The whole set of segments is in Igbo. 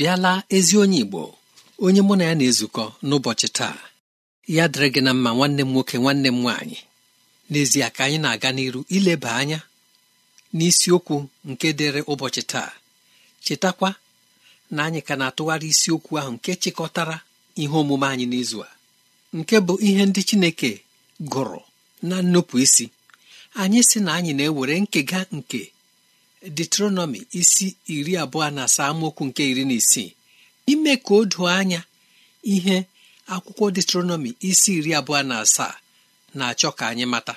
bịala ezi onye Igbo onye mụ na ya na-ezukọ n'ụbọchị taa ya dịrị gị na mma nwanne m nwoke nwanne m nwaanyị n'ezie ka anyị na-aga n'iru ileba anya n'isiokwu nke dịrị ụbọchị taa chetakwa na anyị ka na-atụgharị isiokwu ahụ nke chịkọtara ihe omume anyị n'izu a nke bụ ihe ndị Chineke gụrụ na nnupụ isi anyị sị na anyị na-ewere nkega nke detronọmi isi iri abụọ na asaa amaokwu nke iri na isii ime ka o doo anya ihe akwụkwọ detronọmi isi iri abụọ na asaa na-achọ ka anyị mata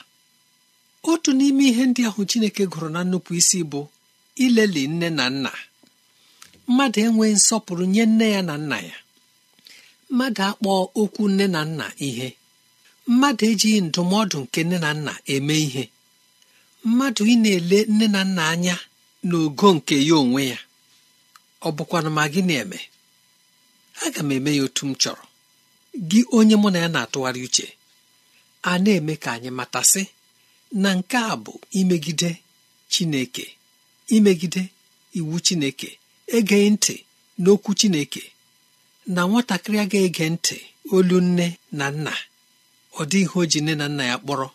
otu n'ime ihe ndị ahụ chineke gụrụ na nnupụ isi bụ ileli nne na nna mmadụ enweghị nsọpụrụ nye nne ya na nna ya mmadụ akpọọ okwu nne na nna ihe mmadụ ejighị ndụmọdụ nke nne na nna eme ihe mmadụ ị na-ele nne na nna anya n'ogo nke ya onwe ya ọ bụkwana ma gị na-eme aga m eme ya otu m chọrọ gị onye mụ na ya na-atụgharị uche a na-eme ka anyị matasị na nke a bụ imegide Chineke imegide iwu Chineke egeghị ntị n'okwu Chineke na nwatakịrị agaghị ege ntị olu nne na nna ọ dịghị o ji nne na nna ya kpọrọ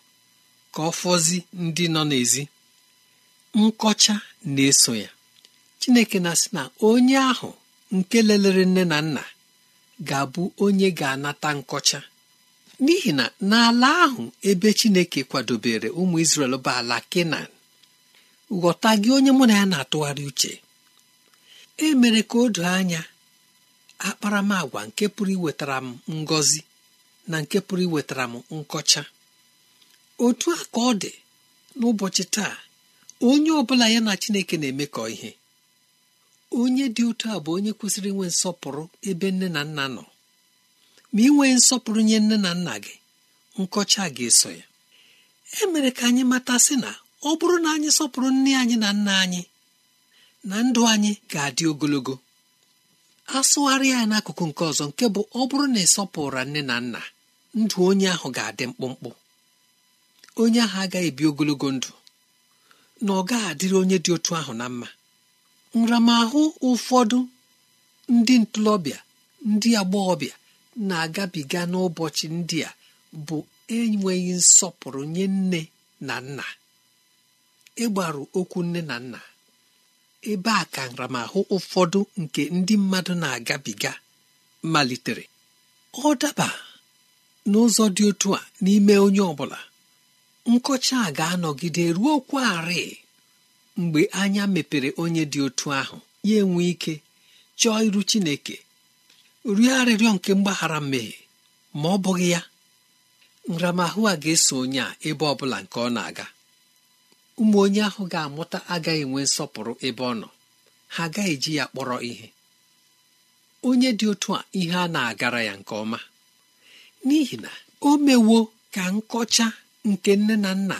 ka ọ fọzi ndị nọ n'ezi nkọcha na-eso ya chineke na sị na onye ahụ nke lelere nne na nna ga-abụ onye ga-anata nkọcha n'ihi na n'ala ahụ ebe chineke kwadobere ụmụ Izrel bụ ala kenan ghọta gị onye mụ na ya na-atụgharị uche e mere ka o doo anya akparamagwa nke pụrụ iwetara m ngọzi na nke pụrụ iwetara m nkọcha otu a ka ọ dị n'ụbọchị taa onye ọ bụla ya na chineke na-emekọ ihe onye dị otu a bụ onye kwesịrị inwe nsọpụrụ ebe nne na nna nọ ma inwe nsọpụrụ nye nne na nna gị nkọcha ga-eso ya e mere ka anyị mata sị na ọ bụrụ na anyị sọpụrụ nne anyị na nna anyị na ndụ anyị ga-adị ogologo asụgharị ya n'akụkụ nke ọzọ nke bụ ọ bụrụ na ịsọpụrụ nne na nna ndụ onye ahụ ga-adị mkpụmkpụ onye ahụ agaghị ebi ogologo ndụ na ọ gaghị adịrị onye dị otu ahụ na mma nramahụ ụfọdụ ndị ntorobịa ndị agbọghọbịa na-agabiga n'ụbọchị ndị a bụ enweghị nsọpụrụ nye nne na nna ịgbaru okwu nne na nna ebe a ka nramahụ ụfọdụ nke ndị mmadụ na-agabiga malitere ọ daba n'ụzọ dị otu a n'ime onye ọ bụla nkọcha a ga-anọgide ruo kwarị mgbe anya mepere onye dị otu ahụ ya enwe ike chọọ iru chineke rie arịrịọ nke mgbaghara mmehie ma ọ bụghị ya nramahụ a ga-eso onye a ebe ọ bụla nke ọ na-aga ụmụ onye ahụ ga-amụta agaghị enwe nsọpụrụ ebe ọ nọ ha agaghị eji ya kpọrọ ihe onye dị otu a ihe a na-agara ya nke ọma n'ihi na o mewo ka nkọcha nke nne na nna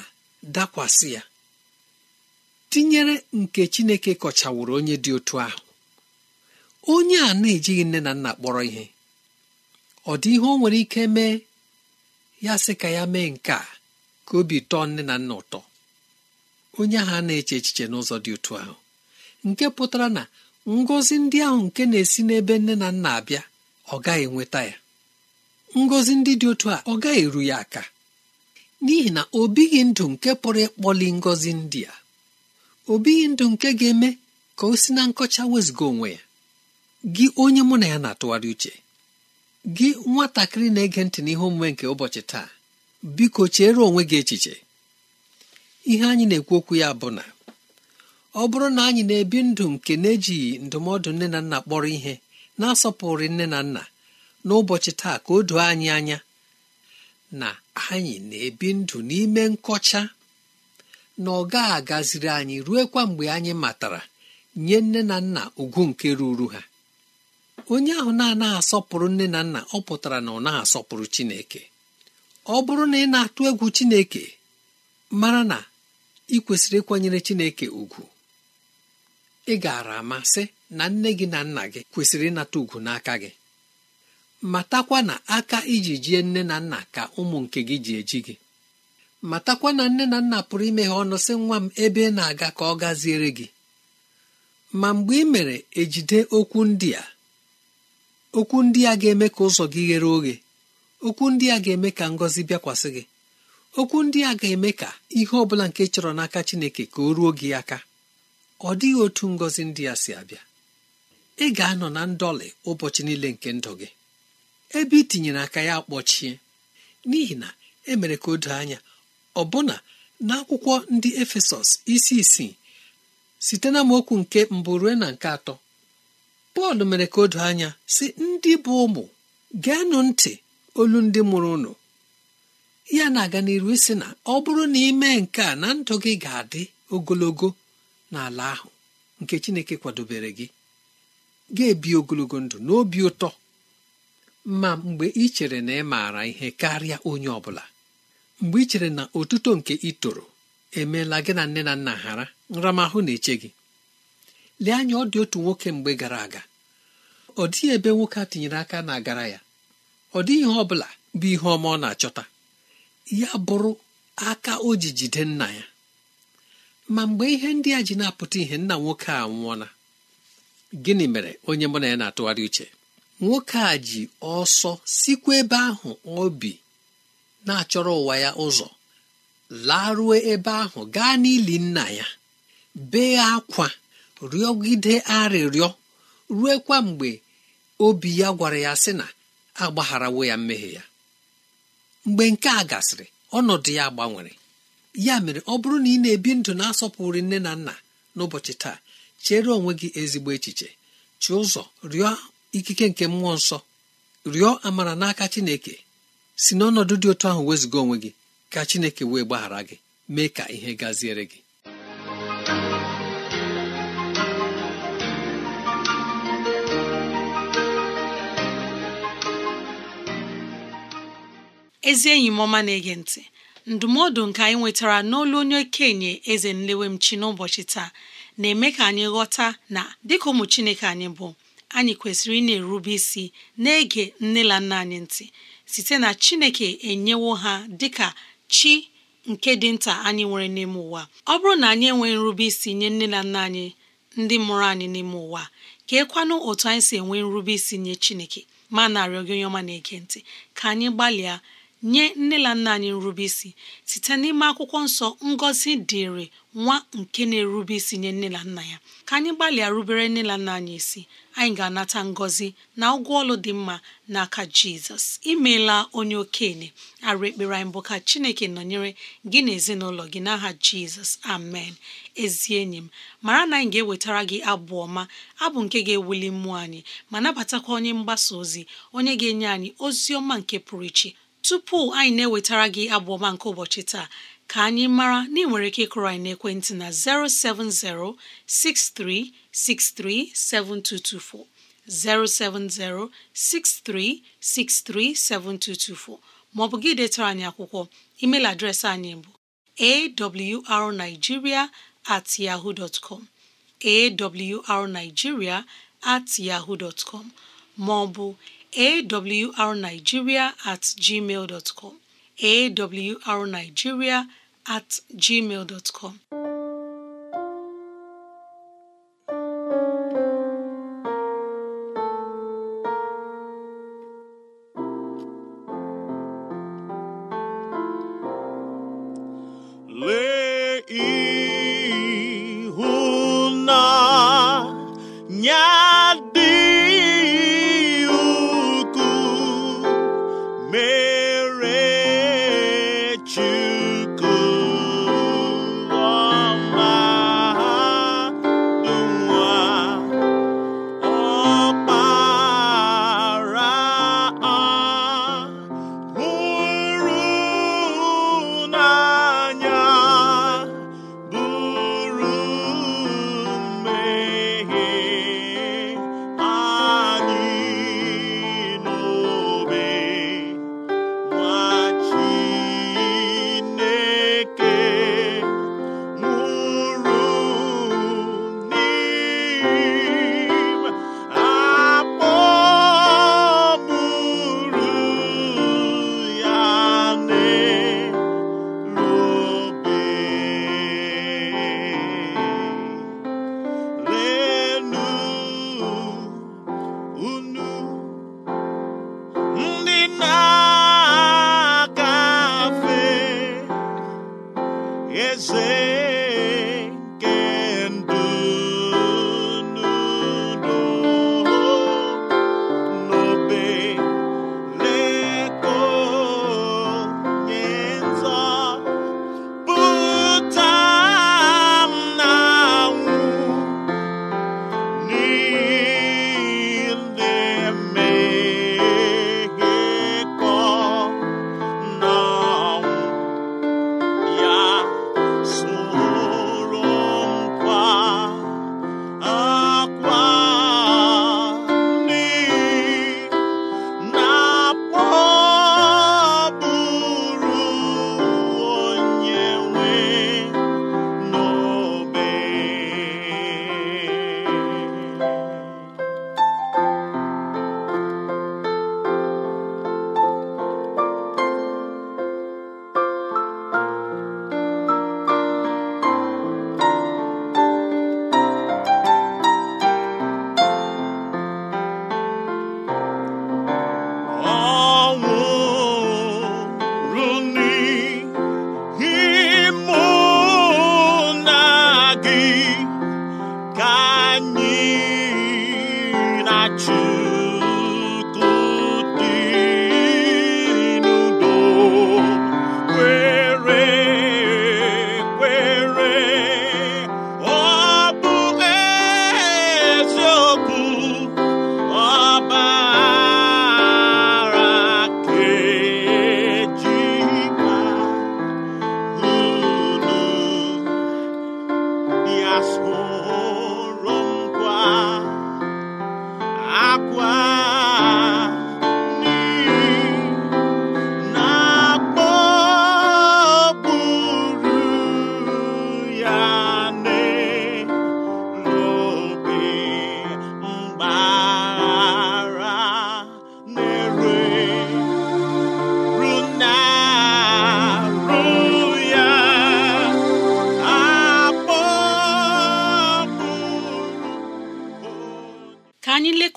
dakwasị ya tinyere nke chineke kọchawụrụ onye dị otu ahụ onye a na-ejighị nne na nna kpọrọ ihe ọ dị ihe o nwere ike mee ya sị ka ya mee nke a ka obi tọọ nne na nna ụtọ onye ahụ na-eche echiche n'ụzọ dị otu ahụ nke pụtara na ngọzi ndị ahụ nke na-esi n'ebe nne na nna abịa ọ gaghị enweta ya ngọzi ndị dị otu a ọ gaghị eru ya aka n'ihi na o ndụ nke pụrụ ịkpọli ngọzi ndị a o bighị ndụ nke ga-eme ka o si na nkọcha wezụga onwe ya gị onye mụ na ya na-atụgharị uche gị nwatakịrị na-ege ntị n'ihe omume nke ụbọchị taa biko chere onwe gị echiche ihe anyị na-ekwu okwu ya bụ na ọ bụrụ na anyị na-ebi ndụ nke na-ejighị ndụmọdụ nne na nna kpọrọ ihe na-asọpụrụ nne na nna n'ụbọchị taa ka o doo anyị anya na anyị na-ebi ndụ n'ime nkọcha na ọ gaghị agaziri anyị kwa mgbe anyị matara nye nne na nna ugwu nke ruru ha onye ahụ na-anaghị asọpụrụ nne na nna ọ pụtara na ọ na asọpụrụ Chineke ọ bụrụ na ị na-atụ egwu Chineke mara na ị kwesịrị ịkwanyere Chineke ugwu ị gaara amasị na nne gị na nna gị kwesịrị ịnata ugwu n'aka gị matakwa na aka iji jie nne na nna ka ụmụ nke gị ji eji gị matakwa na nne na nna pụrụ imeghe ọnụ sị nwa m ebe ị na-aga ka ọ gaziere gị ma mgbe ị mere ejide okwu ndị a okwu ndị a ga-eme ka ụzọ gị ghere oghe okwu ndị a ga-eme ka ngọzi bịakwasị gị okwu ndị a ga-eme ka ihe ọ bụla nke chọrọ n'aka Chineke ka o ruo gị aka ọ dịghị otu ngọzi ndị a si abịa ị ga-anọ na ndọlị ụbọchị niile nke ndụ gị ebe i tinyere aka ya kpọchie n'ihi na emere ka o doo anya ọbụna n'akwụkwọ ndị efesọs isi isii site na mokwu nke mbụ ruo na nke atọ pọl mere ka o anya si ndị bụ ụmụ geenụ ntị olu ndị mụrụ ụnụ ya na-aga n'iru sị na ọ bụrụ na ime nke a na ndụ gị ga-adị ogologo n'ala ahụ nke chineke kwadobere gị ga-ebi ogologo ndụ n'obi ụtọ ma mgbe ị chere na ị maara ihe karịa onye ọ bụla mgbe ị chere na otuto nke ị toro emeela gị na nne na nna ghara nramahụ na-eche gị lee anya ọ dị otu nwoke mgbe gara aga ọ dịghị ebe nwoke a tinyere aka na agara ya ọ dịghị ihe ọ bụla bụ ihe ọma ọ na-achọta ya bụrụ aka o ji jide nna ya ma mgbe ihe ndị a ji na-apụta ihe nna nwoke a nwụọla gịnị mere onye mụ na ya na-atụgharị uche nwoke a ji ọsọ sikwa ebe ahụ obi na-achọrọ ụwa ya ụzọ laruo ebe ahụ gaa n'ili nna ya bee akwa rịọgide arịrịọ ruekwa mgbe obi ya gwara ya sị na agbagharawo ya mmehie ya mgbe nke a gasịrị ọnọdụ ya gbanwere ya mere ọ bụrụ na ị na-ebi ndụ na-asọpụrụ nne na nna n'ụbọchị taa chere onwe gị ezigbo echiche chi ụzọ rịọ ikike nke mmụọ nsọ rịọ amara n'aka Chineke si n'ọnọdụ dị otu ahụ wezụga onwe gị ka Chineke wee gbaghara gị mee ka ihe gaziere gị ezi enyi mọma na-ege ntị ndụmọdụ nke anyị nwetara n'olu onye okenye eze nlewemchi n'ụbọchị taa na-eme ka anyị ghọta na dịka ụmụ Chineke anyị bụ anyị kwesịrị ị na-erube isi na-ege nne na nna anyị ntị site na Chineke enyewo ha dịka chi nke dị nta anyị nwere n'ime ụwa ọ bụrụ na anyị enweghị nrube isi nye nne na nna anyị ndị mụrụ anyị n'ime ụwa ka ekwanụ otu anyị si enwe nrube isi nye Chineke ma narị gị onye ọma na-ege ntị ka anyị gbalịa nye nne na nna anyị nrube isi site n'ime akwụkwọ nsọ ngọzi dịrị nwa nke na-erube isi nye nne na nna ya ka anyị gbalịa rubere nne na nna anyị isi anyị ga-anata ngọzi na ụgwọ ọlụ dị mma n'aka jizọs imeela onye okenye arụ ekpere anyị bụ ka chineke nọnyere gị na ezinụlọ gị n'aha jizọs amen ezi enyi m mara na anyị ga-ewetara gị abụ ọma abụ nke ga-ewuli mmụọ anyị ma nabatakwa onye mgbasa ozi onye ga-enye anyị ozi ọma nke pụrụ iche tupu anyị na-ewetara gị abụ ọma nke ụbọchị taa ka anyị mara na ị nwere ike ịkụrụ anyị n'ekwentị na 070 6363 7224 070 7224 ma ọ bụ gị detara anyị akwụkwọ E-mail adreesị anyị bụ awrnigeria at at ma ọ bụ awrnigeria at gmail dot com awrnigeria at gmail dot com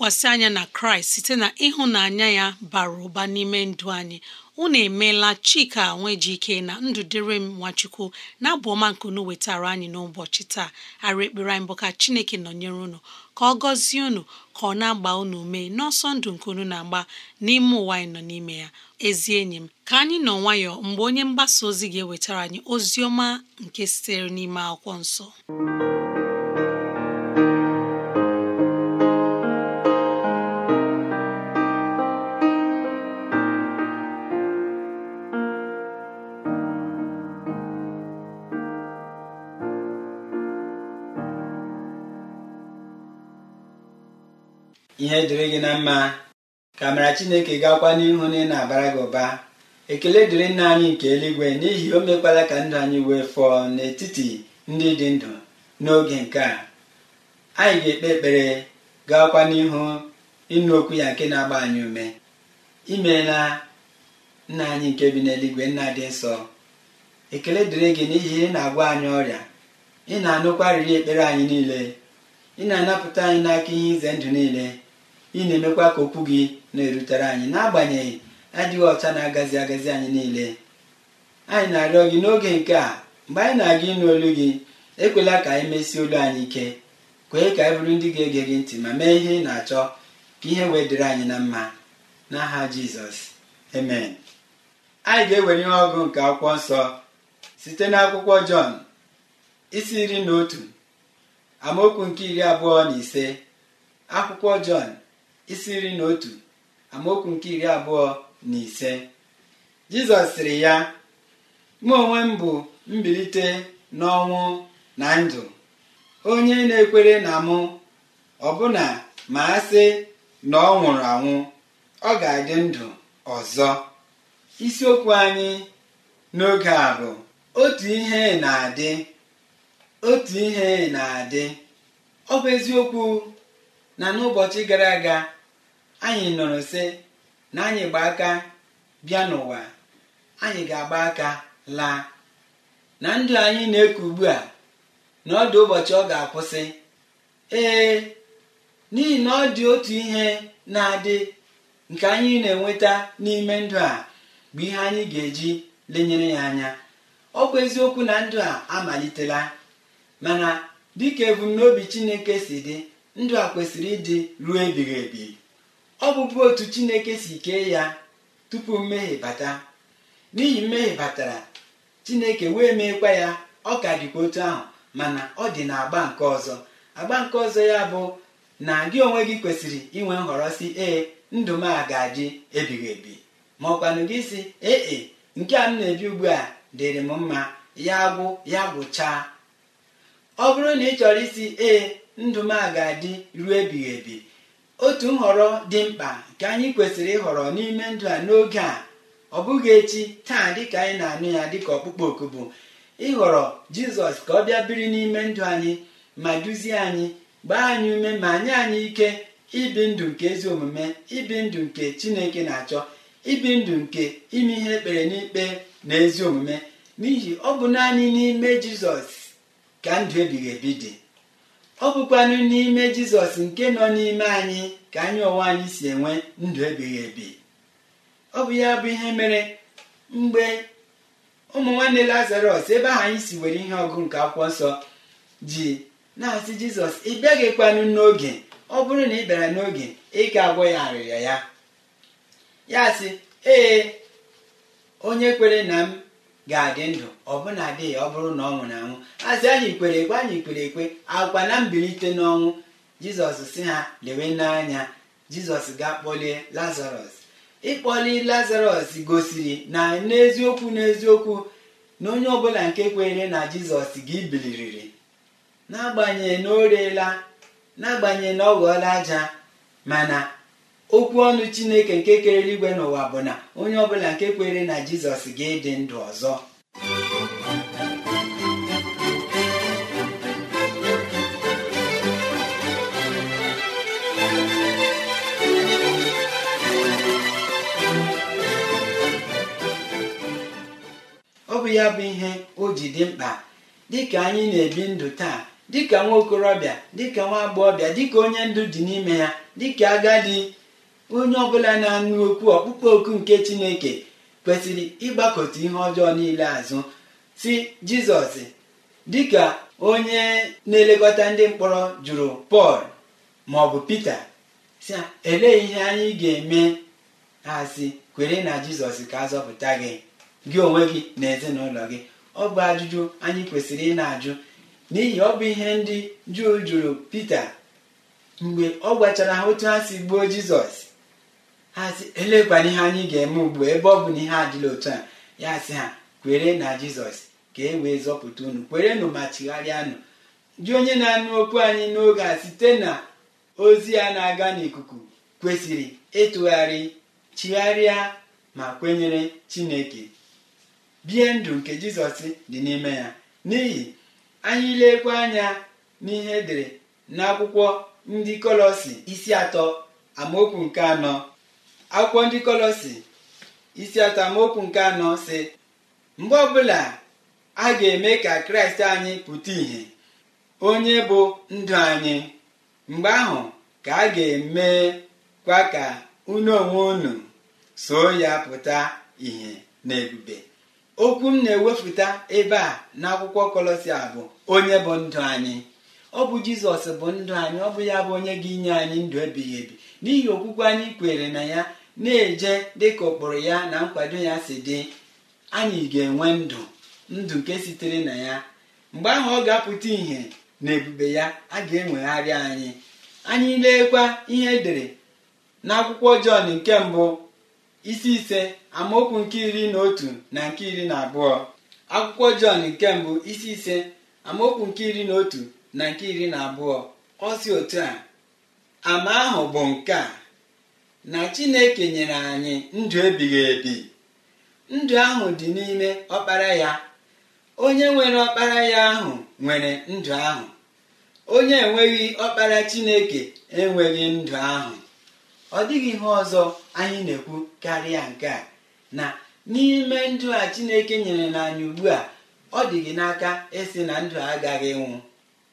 lekwasị anya na kraịst site na ịhụnanya ya bara ụba n'ime ndụ anyị unu emeela chika nwejike na ndụ dịrị m nwachukwu na-abụ ọma nke unu wetara anyị n'ụbọchị taa ara ekpere anyị bụ ka chineke nọnyere unu ka ọ gọzie unu ka ọ na-agba unu mee n'ọsọ ndụ nke unu na-agba n'ime ụwa anyị nọ n'ime ya ezi enyi m ka anyị nọ nwayọ mgbe onye mgbasa ozi ga-ewetara anyị ozi ọma nke sitere n'ime akwụkwọ nsọ ihe dịrị gị na mma ka mara chineke gakwa n'ihu na ị na-abara gị ụba ekele dịrị nna anyị nke eluigwe n'ihi o mekwala ka ndụ anyị wee fọọ n'etiti ndị dị ndụ n'oge nke a anyị ga-ekpe ekpere gakwa n'ihu ịnụ okwu ya nke na-agba anyị ume imeela nna anyị nke bi n'eluigwe nna dị nsọ ekele dịrị gị n'ihi ị na-agwa anyị ọrịa ị na-anụkwa arịrị ekpere anyị niile ị na-anapụta anyị n'aka ihe ize ndụ niile ị na-emekwa ka okwu gị na-erutere anyị n'agbanyeghị adịghị ọcha na-agazi agazi anyị niile anyị na-arịọ gị n'oge nke a mgbe anyị na-aga ịnụ olu gị ekwela ka anyị mesie olu anyị ike kwee ka anyị bụrụ ndị ga-ege gị ntị ma mee ihe ị na-achọ ka ihe wee dịrị anyị na mma n'aha jizọs amen anyị ga-ewere ihe ọgụ nke akwụkwọ nsọ site n'akwụkwọ jọn isi iri na otu amaokwu nke iri abụọ na ise akwụkwọ jọn isi nri na otu amaokwu nke iri abụọ na ise jizọs sịrị ya mụ onwe m bụ mbilite n'ọnwụ na ndụ onye na-ekwere na mụ ọbụna ma a sị na ọ nwụrụ anwụ ọ ga-adị ndụ ọzọ isiokwu anyị n'oge a bụ otu ihe na-adị otu ihe na-adị ọ bụ eziokwu na n'ụbọchị gara aga anyị nọrọ sị na anyị gba aka bịa n'ụwa anyị ga-agba aka laa na ndụ anyị na-eku ugbu a na ọ dị ụbọchị ọ ga-akwụsị ee n'ihi na ọ dị otu ihe na-adị nke anyị na-enweta n'ime ndụ a bụ ihe anyị ga-eji lenyere ya anya ọ bụ eziokwu na ndụ a amalitela mana dịka ebumnobi Chineke si dị ndụ a kwesịrị ịdị ruo ebighị ebi ọ bụbu otu chineke si kee ya tupu mmehie bata n'ihi mmehie batara chineke wee meekwa ya ọ ka dịkwa otu ahụ mana ọ dị na agba nke ọzọ agba nke ọzọ ya bụ na gị onwe gị kwesịrị inwe nhọrọ si ee ndụ m a ga-adị ebighị ebi ma ọkwanụ gị si ee e, nke a m na-ebi ugbu a dịrị m mma ya gwụ ya gwụchaa ọ bụrụ na ị chọrọ isi ee ndụ m a ga-adị ruo ebighị ebi otu nhọrọ dị mkpa nke anyị kwesịrị ịhọrọ n'ime ndụ a n'oge a ọ bụghị echi taa dịka anyị na-anụ ya dịka ọkpụkpọ oku bụ ịhọrọ jizọs ka ọ bịa biri n'ime ndụ anyị ma duzie anyị gbaa anyị ume ma nye anyị ike ibi ndụ nke ezi omume ibi ndụ nke chineke na-achọ ibi ndụ nke ime ihe ekpere n'ikpe na ezi omume n'ihi ọ bụ naanị n'ime jizọs ka ndụ ebighị ebi dị ọ bụ bụkwanụ n'ime jizọs nke nọ n'ime anyị ka anyị onwe anyị si enwe ndụ ebighị ebi ọ bụ ya bụ ihe mere mgbe ụmụ nwanne lazarọs ebe ahụ anyị si were ihe ọgụ nke akwụkwọ nsọ ji na-asị jizọs ị bịaghịkwanụ n'oge ọ bụrụ na ị bịara n'oge ị ga agwọ ya arịrịa ya ya sị ee onye kwere na m ga-adị ndụ ọbụna dị adịghị ọ bụrụ na ọ nwụrụ anwụ asị anyị kwere ekwe anyị kwere ekwe akwa na mbilite n'ọnwụ jizọs si ha lewe n'anya jizọs ga-akpọlie lazarọs ịkpọli lazarọs gosiri na n'eziokwu n'eziokwu na onye ọbụla nke kwere na jizọs gị biliriri n'agbanyeghị na o reela n'agbanyeghị na ọ ghọọla aja mana okwu ọnụ chineke nke kere igwe n'ụwa bụ na onye ọbụla nke kwere na jizọs ga-edị ndụ ọzọ ọ bụ ya bụ ihe o ji dị mkpa dịka anyị na-ebi ndụ taa dịka nwa okorobịa dịka nwa agbọghọbịa dịka onye ndụ dị n'ime ya dịka agadi onye ọbụla na anụ okwu ọkpụkpọ oku nke chineke kwesịrị ịgbakọta ihe ọjọọ niile azụ si jizọs dịka onye na-elekọta ndị mkpọrọ jụrụ pọl ma ọ bụ pita si elee ihe anyị ga-eme ha si kwere na jizọs ka azọpụta zọpụta gị gị onwe gị na ezinụlọ gị ọ bụ ajụjụ anyị kwesịrị ị na-ajụ n'ihi ọ bụ ihe ndị juu jụrụ pita mgbe ọ gwachara ha otu ha si gbuo jizọs hazi elekwana ihe anyị ga-eme ugbu ebe ọ bụ na ihe adịla otu a ya sị ha kwere na jizọs ka e wee zọpụta unu kwerenụ ma chigharịanụ dị onye na-anụ okwu anyị n'oge a site na ozi ya na-aga n'ikuku kwesịrị ịtụgharị chigharịa ma kwenyere chineke bie ndụ nke jizọs dị n'ime ya n'ihi anyị lekwa anya n'ihe edere n'akwụkwọ ndị kọlọsi isi atọ amaokwu nke anọ akwụkwọ ndị kolosi isi atamokwu nke anọ si mgbe ọbụla a ga-eme ka kraịst anyị pụta ìhè onye bụ ndụ anyị mgbe ahụ ka a ga-eme kwa ka unu onwe unu soo ya pụta ìhè na ebube okwu m na-ewepụta ebe a n'akwụkwọ a bụ onye bụ ndụ anyị ọ bụ jizọs bụ ndụ anyị ọ bụ ya bụ onye ga-inye anyị ndụ ebighị ebi n'ihi okwukwe anyị kwere na ya na-eje dịka ụkpụrụ ya na nkwado ya si dị anyị ga-enwe ndụ ndụ nke sitere na ya mgbe ahụ ọ ga-apụta ìhè na ebube ya a ga-enwegharị anyị anyị leekwa ihe edere n'akwụkwọ Jọn nke mbụ isi ise amaokwu nke iri na otu na nke iri na abụọ akwụkwọ Jọn nke mbụ isi ise amaokwu nke iri na otu na nke iri na abụọ ọ si otu a ama ahụ bụ nke a na chineke nyere anyị ndụ ebighị ebi ndụ ahụ dị n'ime ọkpara ya onye nwere ọkpara ya ahụ nwere ndụ ahụ onye enweghị ọkpara chineke enweghị ndụ ahụ ọ dịghị ihe ọzọ anyị na-ekwu karịa nke a na n'ime ndụ a chineke nyere anyị ugbu a ọ dịghị n'aka ịsị na ndụ agaghị ịnwụ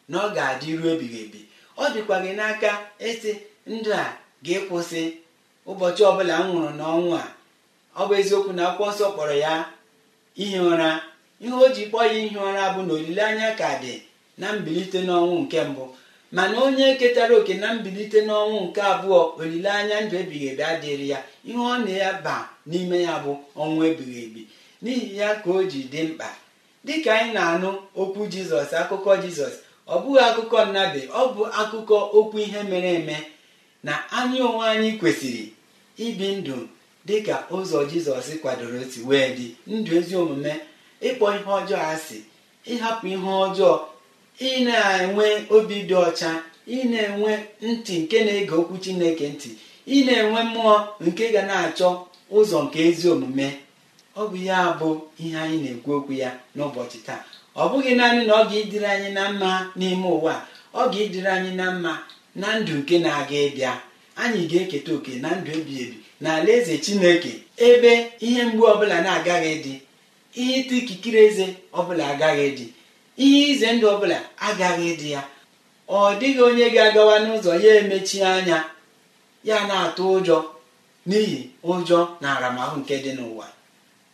na ọ ga-adịru ebighị ebi ọ dịkwa gị n'aka ịsị ndụ a ga kwụsị. ụbọchị ọbụla m nwụrụ n'ọnwụ a ọ bụ eziokwu na akwụkwọ nsọ kpọrọ ya ihi ụra ihe o ji kpọọ ya ihi ụra bụ na olileanya ka dị na mbilite n'ọnwụ nke mbụ mana onye ketara oke na mbilite n'ọnwụ nke abụọ olileanya ndụ ebighị ebi adịrị ya ihe ọ na-aba n'ime ya bụ ọnwụ ebighị ebi n'ihi ya ka o ji dị mkpa dịka anyị na-anụ okwu jizọs akụkọ jizọs ọ bụghị akụkọ nnabe ọ bụ akụkọ okwu ihe mere eme na anyị onwe anyị kwesịrị ibi ndụ dị ka ụzọ jizọs kwadoro otu wee dị ndụ ezi omume ịkpọ ihe ọjọọ asị ịhapụ ihe ọjọọ ị na-enwe obi dị ọcha ị na-enwe ntị nke na-ege okwu chineke ntị ị na-enwe mmụọ nke ga na-achọ ụzọ nke ezi omume ọ bụ ya bụ ihe anyị na-ekwu okwu ya n'ụbọchị taa ọ bụghị naanị na ọ ga idiri anyị na mma n'ime ụwa ọ ga idiri anyị na mma na ndụ nke na-aga ịbịa anyị ga-eketa oke na ndụ ebi ebi na eze chineke ebe ihe mgbu ọbụla na-agaghị dị ihe ịta ikikere eze ọbụla agaghị dị ihe ize ndụ ọbụla agaghị dị ya ọ dịghị onye ga-agawa n'ụzọ ya emechi anya ya na-atụ ụjọ n'ihi ụjọ na aramahụ nke dị n'ụwa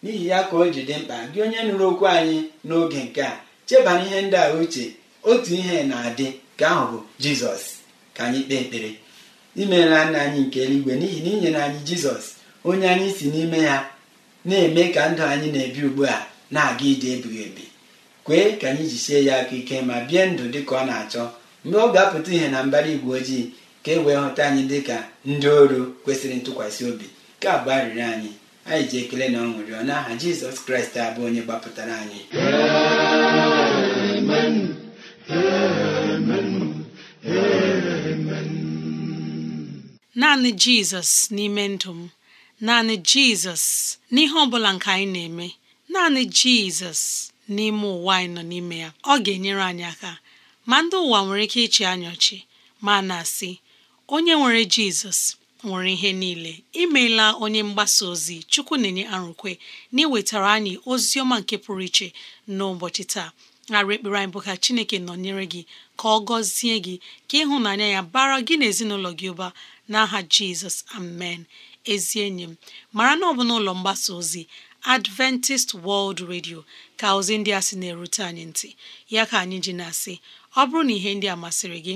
n'ihi ya ka o ji dị mkpa gị onye nụrụ okwu anyị n'oge nke a chebana ihe ndị a uche otu ihe na-adị ka ahụ bụ jizọs ka anyị kpee ekpere imeela nna anyị nke eluigwe n'ihi na inyere anyị jizọs onye anyị si n'ime ya na-eme ka ndụ anyị na-ebi ugbu a na-aga ije ebighị ebi kwee ka anyị sie ya aka ike ma bie ndụ dị ka ọ na-achọ mgbe ọ ga-apụta ihe na mbara igwe ojii ka e wee hụta anyị dị ka ndị ọrụ kwesịrị ntụkwasị obi ka abụ arịrịọ anyị anyị ji ekele na ọṅụ rịọ n'aha jizọs kraịst abụ onye gbapụtara anyị amen amen amen naanị jizọs n'ime ndụ m naanị jizọs n'ihe ọ bụla nke anyị na-eme naanị jizọs n'ime ụwa anyị nọ n'ime ya ọ ga-enyere anyị aka ma ndị ụwa nwere ike ịchị anyị ọchị ma na-asị onye nwere jizọs nwere ihe niile imeela onye mgbasa ozi chukwu na-enye arụkwe na iwetara anyị ozi ọma nke pụrụ iche n'ụbọchị taa arụ ekpere anyị bụ ka chineke nọnyere gị ka ọ gọzie gị ka ịhụnanya ya bara gị na ezinụlọ gị ụba n'aha jizọs amen ezi enyi m mara na ọ bụ n'ụlọ mgbasa ozi adventist world radio ka ozi ndị a sị na-erute anyị ntị ya ka anyị ji na-asị ọ bụrụ na ihe ndị a masịrị gị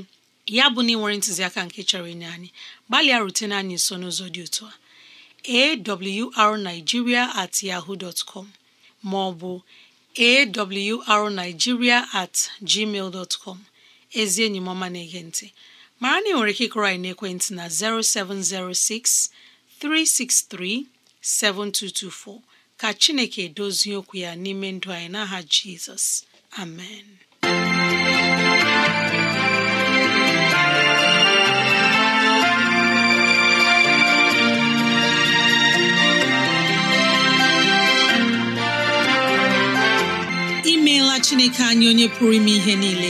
ya bụ na ị nwere ntụziaka nke chọrọ inye anyị gbalịa rutene anyị nso n'ụzọ dị otu a awrnigeria at yahoo dot com ma at gmail dot com ezi enyi m ọma na-ege ntị mara na ị nwere ike ịkụrọ anyị n'ekwentị na 0706 363 7224 ka Chineke edozie okwu ya n'ime ndụ anyị n'aha Jizọs amen imeela Chineke anyị onye pụrụ ime ihe niile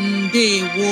ndewo